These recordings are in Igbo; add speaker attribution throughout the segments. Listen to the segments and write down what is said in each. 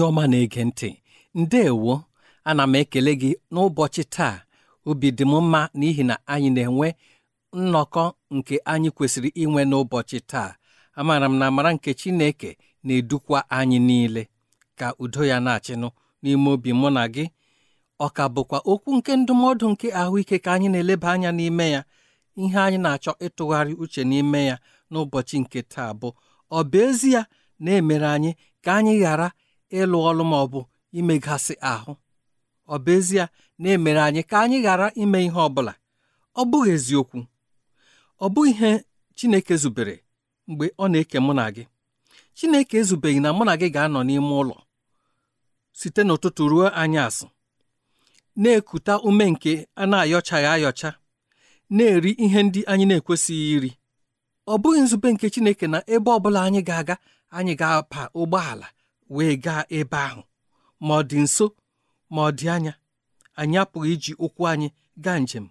Speaker 1: onye ọma na-ege ntị ndeewo ana m ekele gị n'ụbọchị taa obi dị m mma n'ihi na anyị na-enwe nnọkọ nke anyị kwesịrị inwe n'ụbọchị taa amaara m na amara nke Chineke na-edukwa anyị niile ka udo ya na-achịnụ n'ime obi mụ na gị ọ ka bụkwa okwu nke ndụmọdụ nke ahụike ka anyị na-eleba anya n'ime ya ihe anyị na-achọ ịtụgharị uche n'ime ya n'ụbọchị nke taa bụ ọ bụ ezie na-emere anyị ka anyị ghara ịlụ ọlụ ma ọ bụ imegasị ahụ ọ bụ ezie na-emere anyị ka anyị ghara ime ihe ọ bụla ọ bụghị eziokwu ọ bụ ihe Chineke zubere mgbe ọ na-eke mụ na gị Chineke ezubeghị na mụ na gị ga-anọ n'ime ụlọ site n'ụtụtụ ruo asụ na-ekuta ume nke a na-ayọchaghị ayọcha na-eri ihe ndị anyị na-ekwesịghị iri ọ bụghị nzube nke Chineke na ebe ọ bụla anyị ga-aga anyị ga apa ụgbọala wee gaa ebe ahụ ma ọ dị nso ma ọ dị anya anyị apụghị iji ụkwụ anyị gaa njem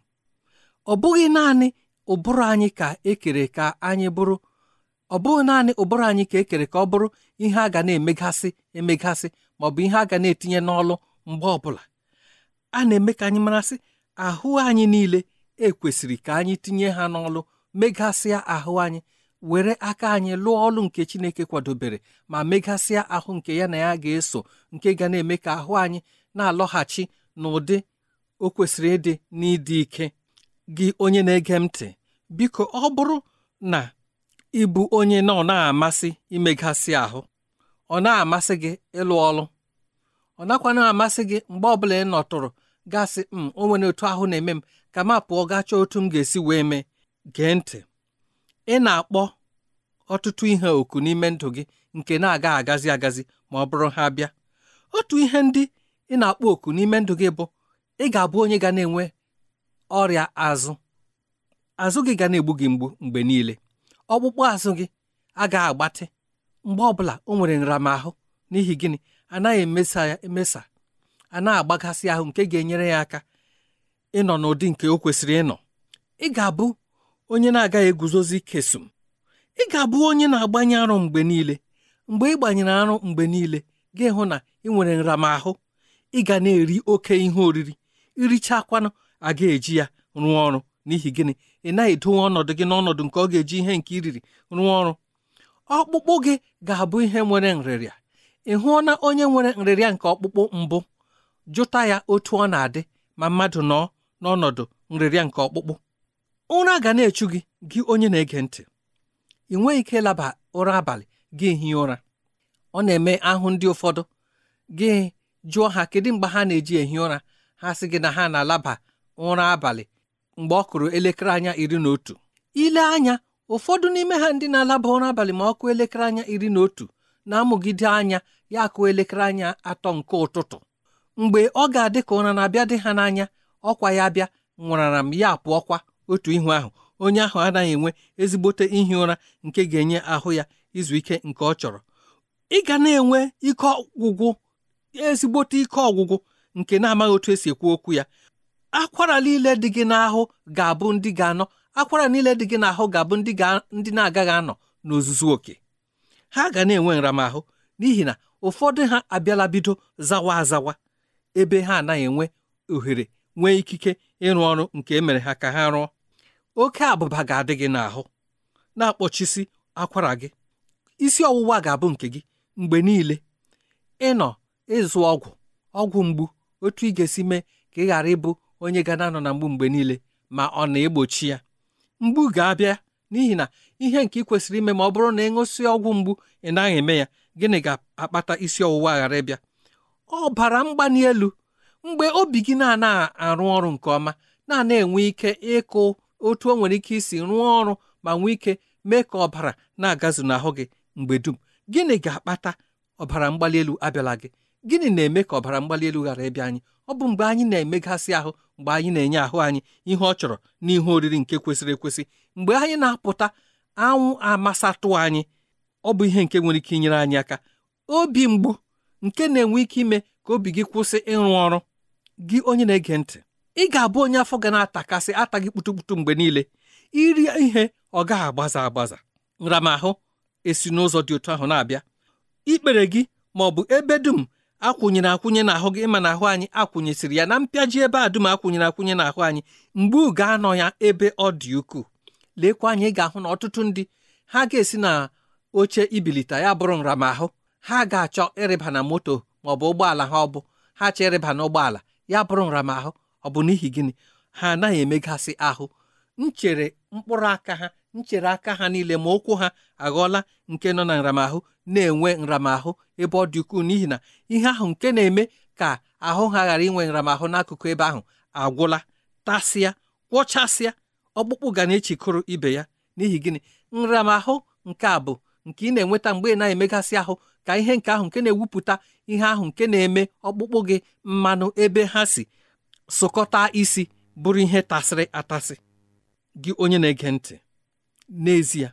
Speaker 1: ọ bụghị naanị ụbụrụ anyị ka ekere ka anyị bụrụ ọ bụghị naanị ụbụrụ anyị ka ekere ka ọ bụrụ ihe a ga na-emegasị emegasị ma ọ bụ ihe a ga na-etinye n'ọlụ mgbe ọbụla a na-eme ka anyị marasị ahụ anyị niile ekwesịrị ka anyị tinye ha n'ọlụ megasịa ahụ anyị were aka anyị lụọ ọlụ nke Chineke kwadobere ma megasịa ahụ nke ya na ya ga-eso nke ga na-eme ka ahụ anyị na-alọghachi n'ụdị o kwesịrị ịdị n'ịdị ike gị onye na-ege ntị biko ọ bụrụ na ịbụ onye na ọ na-amasị imegasị ahụ ọ na-amasị gị ịlụ ọlụ ọ nakwa na-amasị gị mgbe ọbụla ị nọtụrụ gasị m hmm, o nwere otu ahụ na-eme m ka m pụọ gachaa otu m ga-esi wee mee gee ntị ị na-akpọ ọtụtụ ihe oku n'ime ndụ gị nke na-aga agazi agazi ma ọ bụrụ ha bịa otu ihe ndị ị na-akpọ oku n'ime ndụ gị bụ ị ga-abụ onye ga na-enwe ọrịa azụ azụ gị ga na-egbu gị mgbu mgbe niile ọkpụkpụ azụ gị agaghị agbatị mgbe ọbụla o nwere nramahụ n'ihi gịnị anaghị emesa ya emesa a na-agbagasị ahụ nke ga-enyere ya aka ịnọ n'ụdị nke o kwesịrị ịnọ ị ga-abụ onye na-agaghị eguzozi kesum ị ga-abụ onye na-agbanye arụ mgbe niile mgbe ị gbanyere arụ mgbe niile ga hụ na ị nwere nramahụ ị ga na-eri oke ihe oriri irichakwanụ a ga-eji ya rụọ ọrụ n'ihi gịnị ị naghị edowe ọnọdụ gị n'ọnọdụ nke ọ ga-eji ihe nke iriri rụọ ọrụ ọkpụkpụ gị ga-abụ ihe nwere nrịrịa ị hụọna onye nwere nrịrịa nke ọkpụkpụ mbụ jụta ya otu ọ na-adị ma mmadụ nọ n'ọnọdụ nrịrịa nke ọkpụkpụ ụra ga na-echu gị gị onye na-ege ntị ị nweghị ike laba ụra abalị gị ehi ụra ọ na-eme ahụ ndị ụfọdụ gị jụọ ha kedu mgbe ha na-eji ehi ụra ha sị gị na ha na-alaba ụra abalị mgbe ọ kụrụ elekere anya iri na otu ile anya ụfọdụ n'ime ha ndị na-alaba ụra abalị ma ọ kụọ elekere anya iri na otu na-amụgide anya ya akụ elekere anya atọ nke ụtụtụ mgbe ọ ga-adị ka ụra na-abịa dị ha n'anya ọkwa ya bịa nwụrara m ya kwa otu ihu ahụ onye ahụ anaghị enwe ezigbote ihi ụra nke ga-enye ahụ ya izu ike nke ọ chọrọ ị ga na-enwe ike ọgwụgwụ ezigbote ike ọgwụgwụ nke na-amaghị otu esi ekwu okwu ya akwara niile dị gị n'ahụ ga-abụ ndị ga-anọ akwara niile dị gị n'ahụ ga-abụ ndị ndị na-agaghị anọ n'ozuzu oke ha ga na-enwe nramahụ n'ihi na ụfọdụ ha abịala bido zawa azawa ebe ha anaghị enwe ohere nwee ikike ịrụ ọrụ nke emere ha ka ha rụọ oke abụba ga-adị gị n'ahụ na-akpọchisi akwara gị isi ọwụwa ga-abụ nke gị mgbe niile ịnọ ịzụ ọgwụ ọgwụ mgbu otu ị ga-esi mee ka ị ghara ịbụ onye ga na-anọ na mgbu mgbe niile ma ọ na-egbochi ya mgbu ga-abịa n'ihi na ihe nke ị kwesịrị ime ma ọ bụrụ na ịṅụsị ọgwụ mgbu ị naghị eme ya gịnị ga-akpata isi ọwụwa ghara ịbịa ọbara mgbali elu mgbe obi gị na-anaghị arụ ọrụ nke ọma na-ana enwe ike ịkụ otu o nwere ike isi rụọ ọrụ ma nwee ike mee ka ọbara na-agazu n'ahụ gị mgbe dum gịnị ga-akpata ọbara mgbali elu abịala gị gịnị na-eme ka ọbara mgbali elu ghara ịbịa anyị ọ bụ mgbe anyị na-emegasị ahụ mgbe anyị na-enye ahụ anyị ihe ọ chọrọ na ihe oriri nke kwesịrị ekwesị mgbe anyị na-apụta anwụ amasatụ anyị ọ bụ ihe nke nwere ike inyere anyị aka obi mgbu nke na-enwe ike ime ka obi gị kwụsị ịrụ ọrụ gị onye na-ege ntị ị ga-abụ onye afọ ga na-atakasị gị kputukputu mgbe niile iri ihe ọ gaghị agbaza agbaza nramahụ esi n'ụzọ dị otu ahụ na-abịa ikpere gị ma ọ bụ ebe dum akwụnyere akwụnye n'ahụ gị ịma n'ahụ anyị akwụnyesiri ya na mpịaji ebe a dum akwụnyere akwụnye n'ahụ anyị mgbe ga anọ ya ebe ọ dị ukwuu lekwa anyị ị ga-ahụ na ọtụtụ ndị ha ga-esi na oche ibilite ya bụrụ nramahụ ha ga-achọ ịrịba na moto ma ọ bụ ụgbọala ha ọ bụ ha chọ ịrịba na ụgbọala ya bụrụ nramahụ ọ bụ n'ihi gịnị ha anaghị emegasị ahụ nchere mkpụrụ aka ha nchere aka ha niile ma ụkwụ ha aghọọla nke nọ na nramahụ na-enwe nramahụ ebe ọ dị ukwuu n'ihi na ihe ahụ nke na-eme ka ahụ ha ghara inwe nramahụ n'akụkụ ebe ahụ agwụla tasịa kwọchasịa ọkpụkpụ ga na-echikọrọ ibe ya n'ihi gịnị nramahụ nke a bụ nke ị na-enweta mgbe ị na-emegasị ahụ ka ihe nke ahụ nke na-ewupụta ihe ahụ nke na-eme ọkpụkpụ gị mmanụ ebe ha si sụkọta isi bụrụ ihe tasịrị atasị gị onye na-ege ntị n'ezie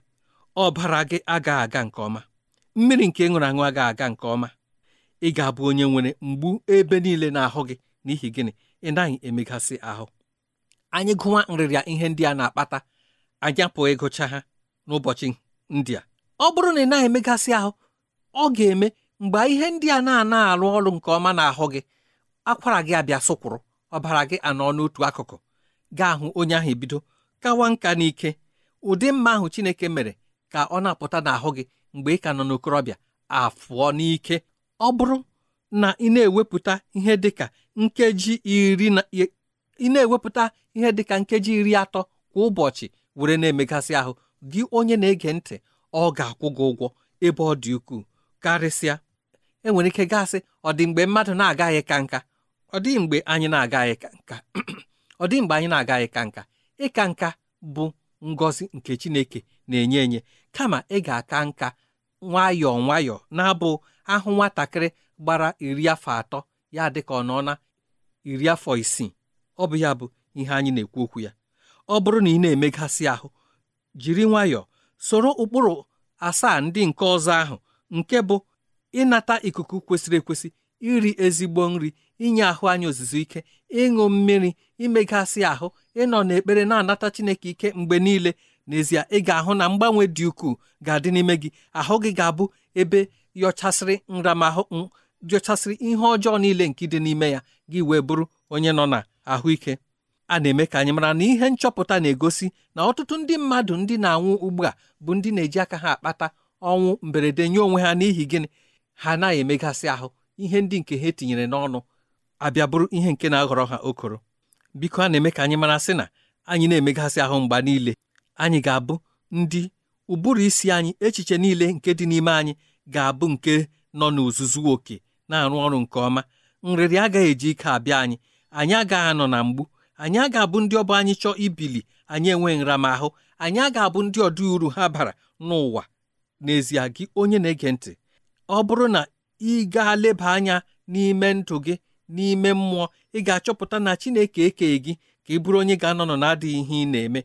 Speaker 1: ọbara gị aga aga nke ọma mmiri nke ṅụrụ aṅụ aga aga nke ọma ị ga-abụ onye nwere mgbu ebe niile n'ahụ gị n'ihi gịnị ị naghị emegasị ahụ anyị gụwa nrịrịa ihe ndị a na-akpata anyị apụghị ịgụcha ha n'ụbọchị ndị a ọ bụrụ na ị naghị emegasị ahụ ọ ga-eme mgbe ihe ndị a na-ana arụ ọrụ nke ọma n'ahụ gị akwara gị abịa sụkwụrụ ọbara gị anọ n'otu akụkụ gaa ahụ onye ahụ ebido kawa nka n'ike ụdị mma ahụ Chineke mere ka ọ na-apụta n'ahụ gị mgbe ị ka nọ n'okorobịa afụọ n'ike ọ bụrụ na ị na-ewepụta ihe dịka nkeji iri na ị na-ewepụta ihe dịka nkeji iri atọ kwa ụbọchị were na-emegasị ahụ gị onye na-ege ntị ọ ga-akwụ gị ụgwọ ebe ọ dị ukwuu karịsịa enwere ike gasị ọ dị mgbe mmadụ na-agaghị ka nka ọ dị mgbe anyị na-agaghị ka nka ọ dị mgbe anyị na-agaghị ka nka ịka nka bụ ngọzi nke Chineke na-enye enye kama ị ga-aka nka nwayọọ nwayọọ na-abụ ahụ nwatakịrị gbara iri afọ atọ ya dị ka ọ nọ na iri afọ isii ọ bụ ya bụ ihe anyị na-ekwu okwu ya ọ bụrụ na ị na-emegasị ahụ jiri nwayọọ soro ụkpụrụ asaa ndị nke ọzọ ahụ nke bụ ịnata ikuku kwesịrị ekwesị iri ezigbo nri inye ahụ anyị ozuzu ike ịṅụ mmiri imegasị ahụ ịnọ n'ekpere na-anata Chineke ike mgbe niile n'ezie ị ga-ahụ na mgbanwe dị ukwuu ga-adị n'ime gị ahụ gị ga-abụ ebe yọchasịrị nramahụ yọchasịrị ihe ọjọọ niile nke dị n'ime ya gị wee bụrụ onye nọ na ahụike a na-eme ka anyị mara na ihe nchọpụta na-egosi na ọtụtụ ndị mmadụ ndị na-anwụ ugbu a bụ ndị na-eji aka ha akpata ọnwụ mberede nye onwe ha n'ihi gịnị ha anaghị emegasị ahụ ihe ndị nke ha etinyere n'ọnụ abịa bụrụ ihe nke na-aghọrọ ha okoro biko a na-eme ka anyị mara sị na anyị na-emegasị ahụ mgba niile anyị ga-abụ ndị ụbụrụ isi anyị echiche niile nke dị n'ime anyị ga-abụ nke nọ n'ozuzu oke na-arụ ọrụ nke ọma nrịrị agaghị eji ike abịa anyị anyị agaghị anọ na mgbu anyị aga abụ ndị ọbụ anyị chọọ ibili anyị enwe nramahụ anyị aga abụ ndị ọdị uru ha bara n'ụwa n'ezie gị onye na-ege ntị ọ bụrụ na ị gaa leba anya n'ime ndụ gị n'ime mmụọ ị ga-achọpụta na Chineke ekeghị gị ka ị bụrụ onye ga-anọnọ na-adịghị ihe ị na-eme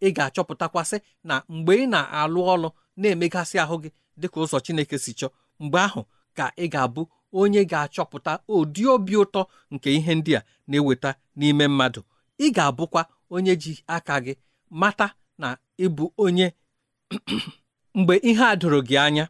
Speaker 1: ị ga-achọpụtakwasị na mgbe ị na-alụ ọlụ na-emegasị ahụ gị dịka ụzọ Chineke si chọọ mgbe ahụ ka ị ga-abụ onye ga-achọpụta ụdị obi ụtọ nke ihe ndị a na-eweta n'ime mmadụ ị ga-abụkwa onye ji aka gị mata na ịbụ onye mgbe ihe a doro gị anya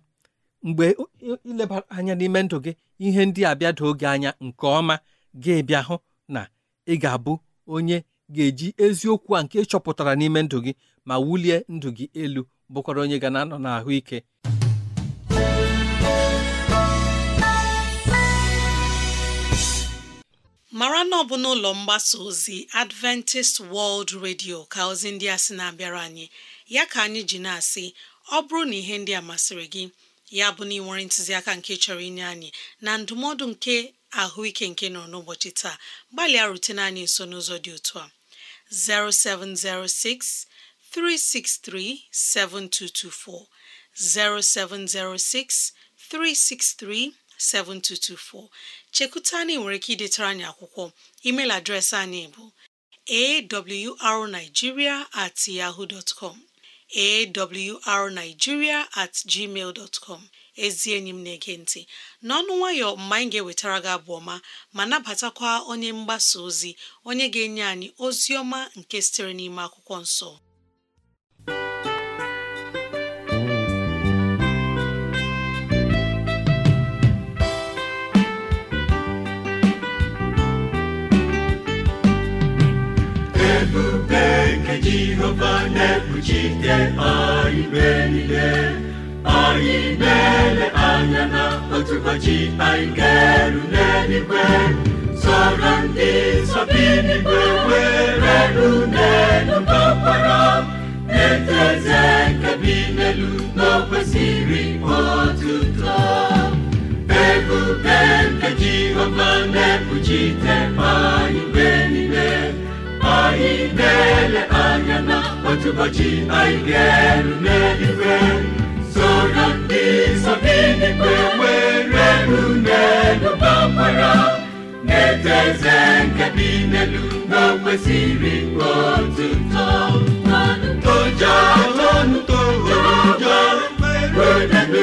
Speaker 1: mgbe ilebara anya n'ime ndụ gị ihe ndị a bịada oge anya nke ọma gị bịa hụ na ị ga-abụ onye ga-eji eziokwu a nke chọpụtara n'ime ndụ gị ma wulie ndụ gị elu bụkwara onye ga na-anọ n'ahụike
Speaker 2: mara na ọ bụ n'ụlọ mgbasa ozi Adventist World Radio ka ozi ndị a sị na-abịara anyị ya ka anyị ji na-asị ọ bụrụ na ihe ndị a masịrị gị ya bụ na ị nwere ntụziaka nke chọrọ inye anyị na ndụmọdụ nke ahụike nke nọ n'ụbọchị taa gbalịa rute anyị nso n'ụzọ dị otu a 0706 363 7224 0706 363 7224 chekuta anyị nwere ike idetara anyị akwụkwọ email adreesị anyị bụ awrnigeria at yahoo awrnigeria at gmail dot com ezi enyi m na-ege ntị n'ọnụ nwayọ mgbe anyị ga-ewetara gị abụ ọma ma nabatakwa onye mgbasa ozi onye ga-enye anyị ozi ọma nke sitere n'ime akwụkwọ nsọ
Speaker 3: Chineke Jehova na-ekpuchite anyị mgbe anyị na anya na otu ụbọchị anyị ga n'eluigwe sọrọ ndị were ru na eze nke bi n'elu n'okwesịrị otuto ebube nke Jehova na-ekpuchite na otu ụbọchị anyị ga-eru n'eluigwe soro ndị nsọ n'eluigwe were n'elu na-eto eze nke bi n'elu na o kwesịrị otuto toja tonu toja were n'elu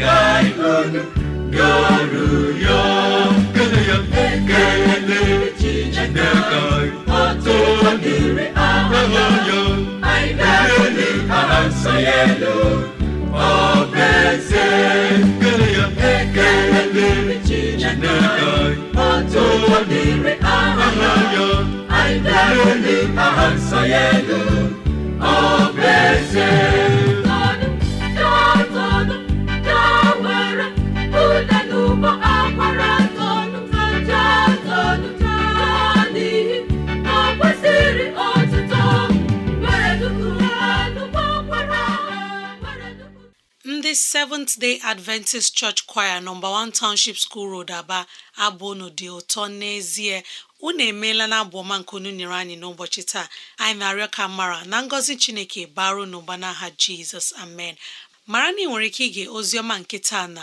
Speaker 3: kaybolu yoruyor Kınıyorum ekele çiçekler Otur gibi ağlıyor Ayrılı arsayelo O benzer Kınıyorum ekele çiçekler O
Speaker 2: ndị Seventh Day Adventist Church Choir nọmba 1 Township School Road Aba abụ n'ụdị ụtọ n'ezie unu emeela na abụ ọma nke unu nyere anyị n'ụbọchị taa anyị na-arịọ ka mara na ngọzi Chineke baro n'ụba n'aha Jizọs amen mara na ị nwere ike ige oziọma nke taa na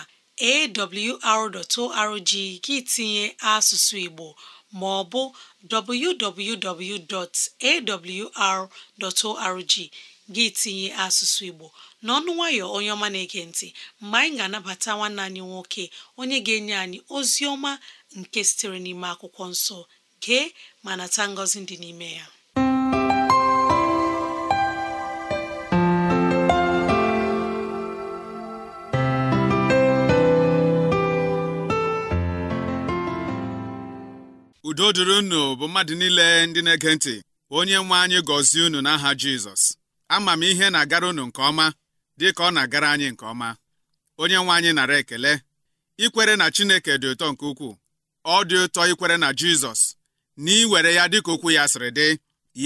Speaker 2: awr.org gị tinye asụsụ Igbo ma ọ bụ www.awr.org gị tinye asụsụ Igbo n'ọnụ nwayọ onye ọma na-ege ntị mgbe anyị ga-anabata nwanne anyị nwoke onye ga-enye anyị ozi ọma nke sitere n'ime akwụkwọ nsọ gee ma nata ngọzi dị n'ime ya
Speaker 4: udo dịrị unu bụ mmadụ niile ndị na-ege ntị onye nwe anyị gọzie unu n'aha Jizọs ama m ihe na-agara unu nke ọma dị ka ọ na-agara anyị nke ọma onye nwe anyị nara ekele ikwere na Chineke dị ụtọ nke ukwuu ọ dị ụtọ ikwere na Jizọs na iwere ya dịka okwu ya sịrị dị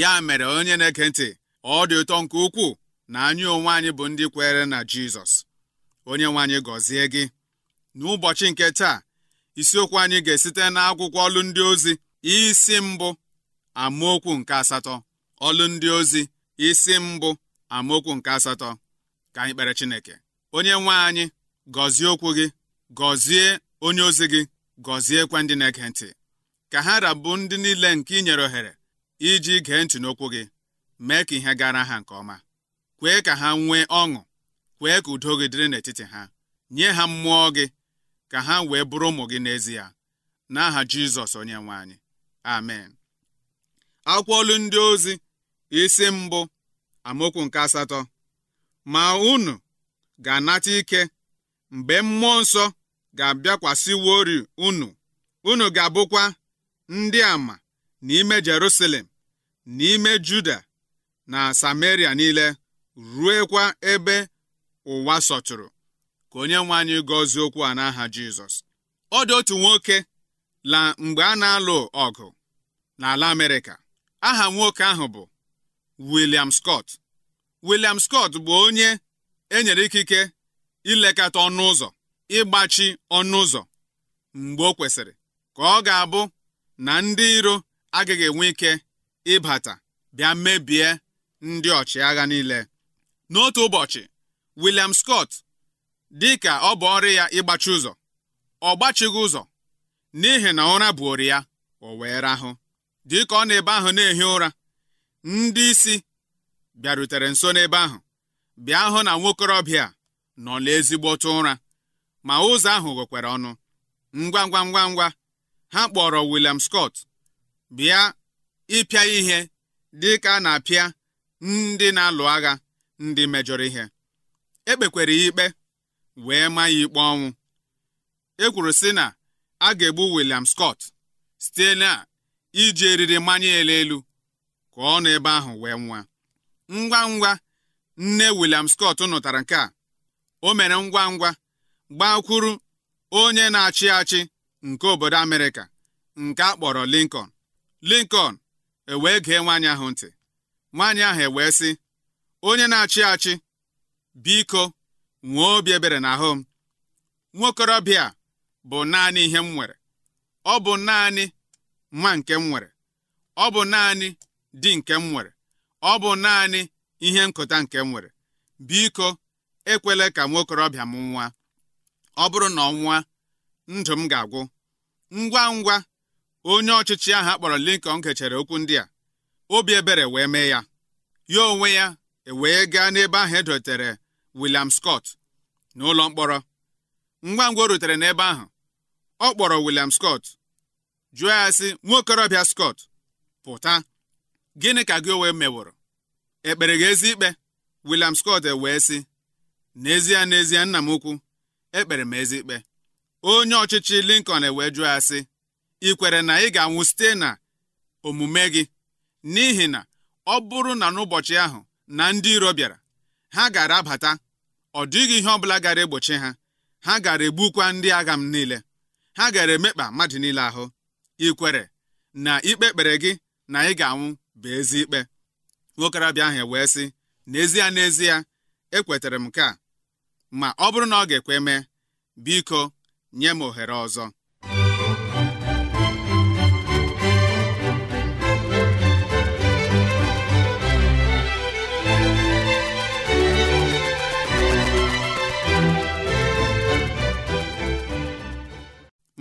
Speaker 4: ya mere onye na-ege ntị ọ dị ụtọ nke ukwuu na anyị onwe anyị bụ ndị kwere na Jizọs onye nwe anyị gọzie gị n'ụbọchị nke taa isiokwu anyị ga-esite n'akwụkwọ ọlụ ndị ozi isi mbụ amaokwu nke asatọ ọlụ ndị ozi isi mbụ amaokwu nke asatọ ka anyị kpere Chineke onye nwe anyị gọzie okwu gị gọzie onye ozi gị gọziekwa ndị na-ege ntị ka ha rabụ ndị niile nke inyere ohere iji gee ntị n'okwu gị mee ka ihe gara ha nke ọma kwee ka ha nwee ọṅụ kwee ka udo gị dịrị n'etiti ha nye ha mmụọ gị ka ha wee bụrụ ụmụ gị n'ezie n'aha Jizọs onye nwe anyị amen akwụkwọ olu ndị ozi isi mbụ amaokwu nke asatọ ma unu ga-anata ike mgbe mmụọ nsọ ga-abịakwasịwori unu unu ga-abụkwa ndị ama n'ime Jerusalem n'ime Juda na Samaria niile ruo kwa ebe ụwa sọtụrụ ka onye nwe anyị gọzie okwu a n'aha Jizọs ọ dị otu nwoke la mgbe a na-alụ ọgụ n'ala Amerịka aha nwoke ahụ bụ William Scott William Scott bụ onye enyere ikike ilekọta ọnụ ụzọ ịgbachi ọnụ ụzọ mgbe ọ kwesịrị ka ọ ga-abụ na ndị iro agaghị enwe ike ịbata bịa mebie ndị ọchịagha niile n'otu ụbọchị William Scott dị ka ọ bụ ọrụ ya ịgbachi ụzọ ọ gbachighị ụzọ n'ihi na ụra buori ya o wee rahụ dịka ọ na-ebe ahụ na-ehi ụra ndị isi bịarutere nso n'ebe ahụ bịa hụ na nwokorobịa nọ n'ezigbotụ ụra ma ụzọ ahụ ghekwere ọnụ ngwa ngwa ngwa ngwa ha kpọrọ William Scott bịa ịpịa ihe dị ka a na-apịa ndị na-alụ agha ndị mejọrọ ihe ekpekwere ya ikpe wee maa ya ikpe ọnwụ e kwuru sị na a ga-egbu William Scott site na iji eriri mmanya ele elu ka ọ nọ ebe ahụ wee nwa ngwa ngwa nne William Scott nụtara nke a o mere ngwa ngwa gbakwuru onye na-achị achị nke obodo Amerịka nke akpọrọ kpọrọ Lincoln Lincoln ewee gee nwaanyị ahụ ntị nwaanyị ahụ ewee sị onye na-achị achị biko nwee obi ebere ahụ m nwokorobịa bụ naanị ihe m nwere ọ bụ naanị nwa nke m nwere ọ bụ naanị di nke m nwere ọ bụ naanị ihe nkụta nke m nwere biko ekwela ka nwokorobịa m nwa ọ bụrụ na ọ nwa ndụ m ga-agwụ ngwa ngwa onye ọchịchị ahụ akpọrọ Lincoln kechere okwu ndị a obi ebere wee mee ya ya onwe ya ewee gaa n'ebe ahụ edotere William Scott n'ụlọ mkpọrọ ngwa ngwa o rutere n'ebe ahụ ọ kpọrọ William Scott jụọ ya sị nwa Scott pụta gịnị ka gị onwe meworo ekpere gị ezi ikpe William Scott e wee sị n'ezie n'ezie nna m ukwu ekpere m ezi ikpe onye ọchịchị Lincoln ewee jụọ ya sị ị kwere na ị ga-anwụ site na omume gị n'ihi na ọ bụrụ na n'ụbọchị ahụ na ndị iro bịara ha gara abata ọ dịghị ihe ọbụla gara egbochi ha ha gara egbukwa ndị agha m niile ha gara emekpa mmadụ niile ahụ ị kwere na ikpe kpere gị na ị ga-anwụ bụ ezi ikpe nwokorobịa ahụ wee sị n'ezie n'ezie ekwetara m nke ma ọ bụrụ na ọ ga-ekwe mee biko nye m ohere ọzọ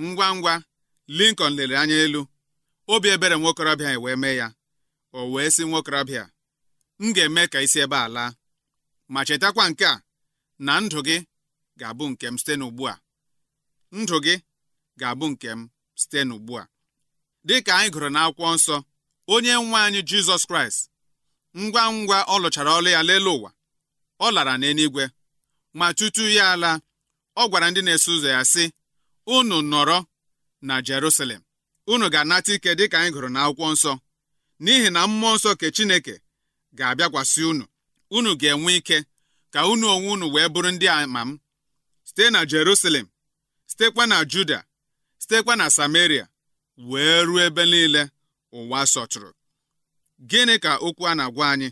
Speaker 4: ngwa ngwa Lincoln lere anya elu obi ebere nwokorobịa wee mee ya o wee sị nwokorobịa m ga-eme ka isi ebe a laa ma chetakwa nke a na ndụ gị ga-abụ nke m site n'ugbu a ndụ gị ga-abụ nke m site n'ugbu a dị ka anyị gụrụ n'akwụkwọ nsọ onye nwe anyị jizọs kraịst ngwa ngwa ọ lụchara ọlụ ya lelee ụwa ọ lara n'eluigwe ma tutu ya ala ọ gwara ndị na-eso ụzọ ya sị unu nọrọ na Jerusalem unu ga-anata ike dị ka anyị gụrụ n'akwụkwọ nsọ n'ihi na mmụọ nsọ nke Chineke ga-abịakwasị unu unu ga-enwe ike ka unu onwe unu wee bụrụ ndị ama m site na Jerusalem sitekwa na Juda sitekwa na Samaria wee ruo ebe niile ụwa sọtụrụ gịnị ka okwu a na-agwa anyị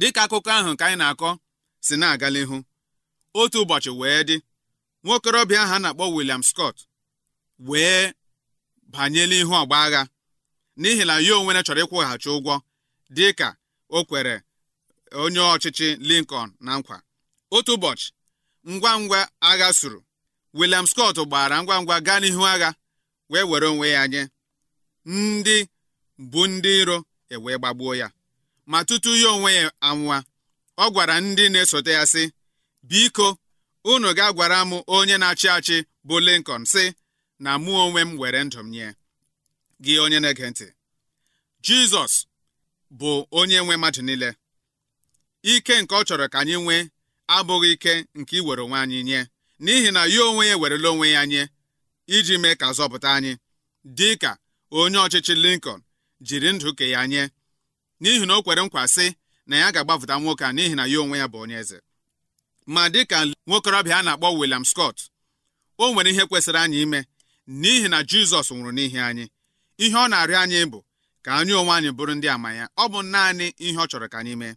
Speaker 4: dịka akụkọ ahụ nke anyị na-akọ si na-aga n'ihu otu ụbọchị wee dị nwokorobịa ahụ a na-akpọ William Scott wee banye n'ihu ọgba agha n'ihi na ya onwe ya chọrọ ịkwụghachi ụgwọ dị ka o kwere onye ọchịchị Lincoln na nkwa otu ụbọchị ngwa ngwa agha suru William Scott gbara ngwa ngwa gaa n'ihu agha wee were onwe ya nye ndị bụ ndị iro ewee gbagbuo ya ma tutu ya onwe ya anwụwa ọ gwara ndị na-esote ya sị biko unu ga gwara m onye na-achị achị bụ Lincoln sị na mụ onwe m were ndụ m nye gị onye na-ege ntị jizọs bụ onye nwe mmadụ niile ike nke ọ chọrọ ka anyị nwee abụghị ike nke iwere onwe anyị nye n'ihi na ya onwe ya ewerela onwe ya nye iji mee ka zọpụta anyị dị ka onye ọchịchị Lincoln jiri ndụ ke ya nye n'ihi na o kwere nkwa sị na ya ga-agbapụta nwoke a n'ihi na ya onwe ya bụ onye eze ma dịka nwokorobịa a na-akpọ William Scott o nwere ihe kwesịrị anyị ime n'ihi na Jizọs nwụrụ n'ihi anyị ihe ọ na-arịọ anyị bụ ka anyị onwe anyị bụrụ ndị ama ya ọ bụ naanị ihe ọ chọrọ ka anyị mee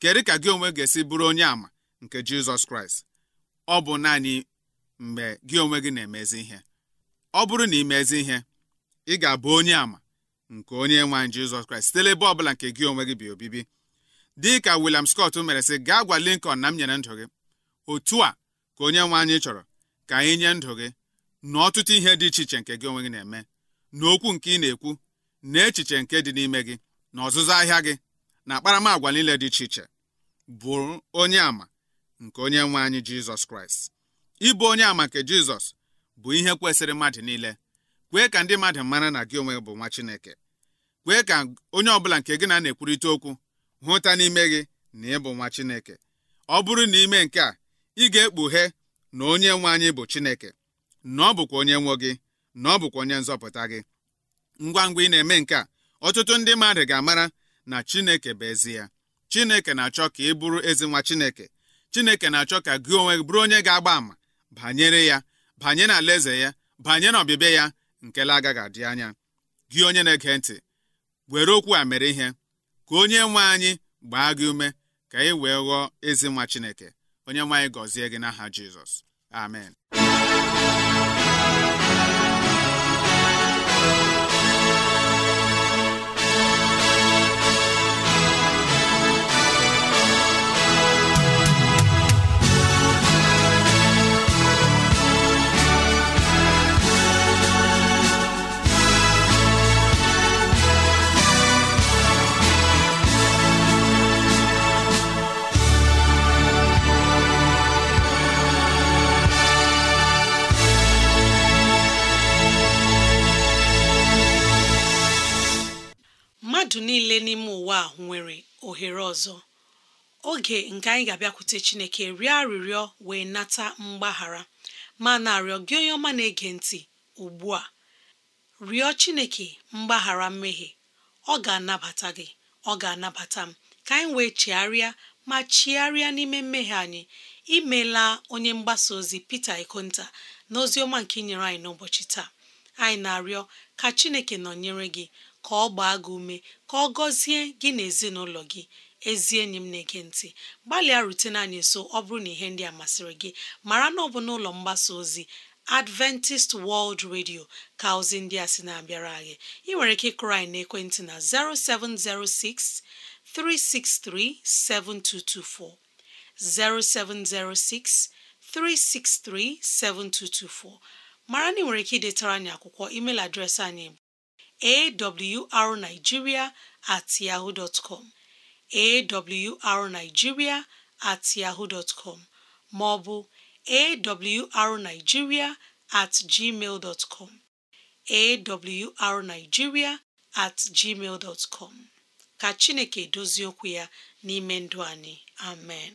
Speaker 4: kedu ka gị onwe ga-esi bụrụ onye ama nke Jizọs Kraịst ọ bụ naanị mgbe gị onwe gị na-emezi ihe ọ bụrụ na ị mezi ihe ị ga-abụ onye ama nke onye nwe anyị Jizọs Kraịst site ọbụla nke gị onwe gị bi obibi dị ka William Scott mere sị gaa gwa Lincoln na m nyere ndụ gị otu a ka onye nwe anyị chọrọ ka anyị nye ndụ gị na ọtụtụ ihe dị iche iche nke gị onwe gị na-eme na okwu nke ị na-ekwu na echiche nke dị n'ime gị na ọzụzụ ahịa gị na akparamagwa niile dị iche iche bụ onye àmà nke onye nwe anyị jizọs kraịst ịbụ onye àmà nke jizọs bụ ihe kwesịrị mmadụ niile kwee ka ndị mmadụ mara na gị onwe bụ nwa chineke kwee ka onye ọbụla nke gị na na-ekwurịta okwu hụta n'ime gị na ịbụ nwa chineke ọ bụrụ na ime nke a ị ga-ekpughe na onye nwe anyị bụ chineke na ọ bụkwa onye nwe gị na ọ bụkwa onye nzọpụta gị ngwa ngwa ị na-eme nke a ọtụtụ ndị mmadụ ga-amara na Chineke bụ ezi ya Chineke na-achọ ka ị bụrụ ezi nwa Chineke Chineke na-achọ ka gị onwe bụrụ onye ga-agba àmà banyere ya banyere alaeze ya banyere ọbịbịa ya nke agaghị adị anya gị onye na-ege ntị were okwu a mere ihe ka onye nwe anyị gbaa gị ume ka ị wee ghọọ ezi nwa Chineke onye nwe anyị gọzie gị n'aha Jizọs amen
Speaker 2: ohere ọzọ oge nke anyị ga-abịakwute chineke rịọ arịrịọ wee nata mgbaghara ma na-arịọ gị onye ọma na-ege ntị ugbu a rịọ chineke mgbaghara mmehie ọ ga-anabata gị ọ ga-anabata m ka anyị wee chigharịa ma chigharịa n'ime mmehie anyị imeela onye mgbasa ozi pete Ikonta na ozi ọma nke nyere anyị n'ụbọchị taa anyị na-arịọ ka chineke nọnyere gị ka ọ gbaa gị ume ka ọ gọzie gị na ezinụlọ gị ezi enyi m na-ege ntị gbalịa rutene anyị nso ọ bụrụ na ihe ndị a masịrị gị mara na ọ bụ n'ụlọ mgbasa ozi Adventist World Radio ka ozi ndị a sị na-abịara anyị ị nwere ike ịkụrụ anyị n'ekwentị na 0706 363 7224 0706 363 7224 mara na ị nwere ike idetara anyị akwụkwọ email adreesị anyị awrnigeria at yahoo dot com awrnigeria at yahoo dot com maọbụ awrnigeria at gmail dot com awrnigeria at com ka Chineke dozie okwu ya n'ime ndụ
Speaker 5: anyị amen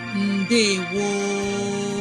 Speaker 5: ndewo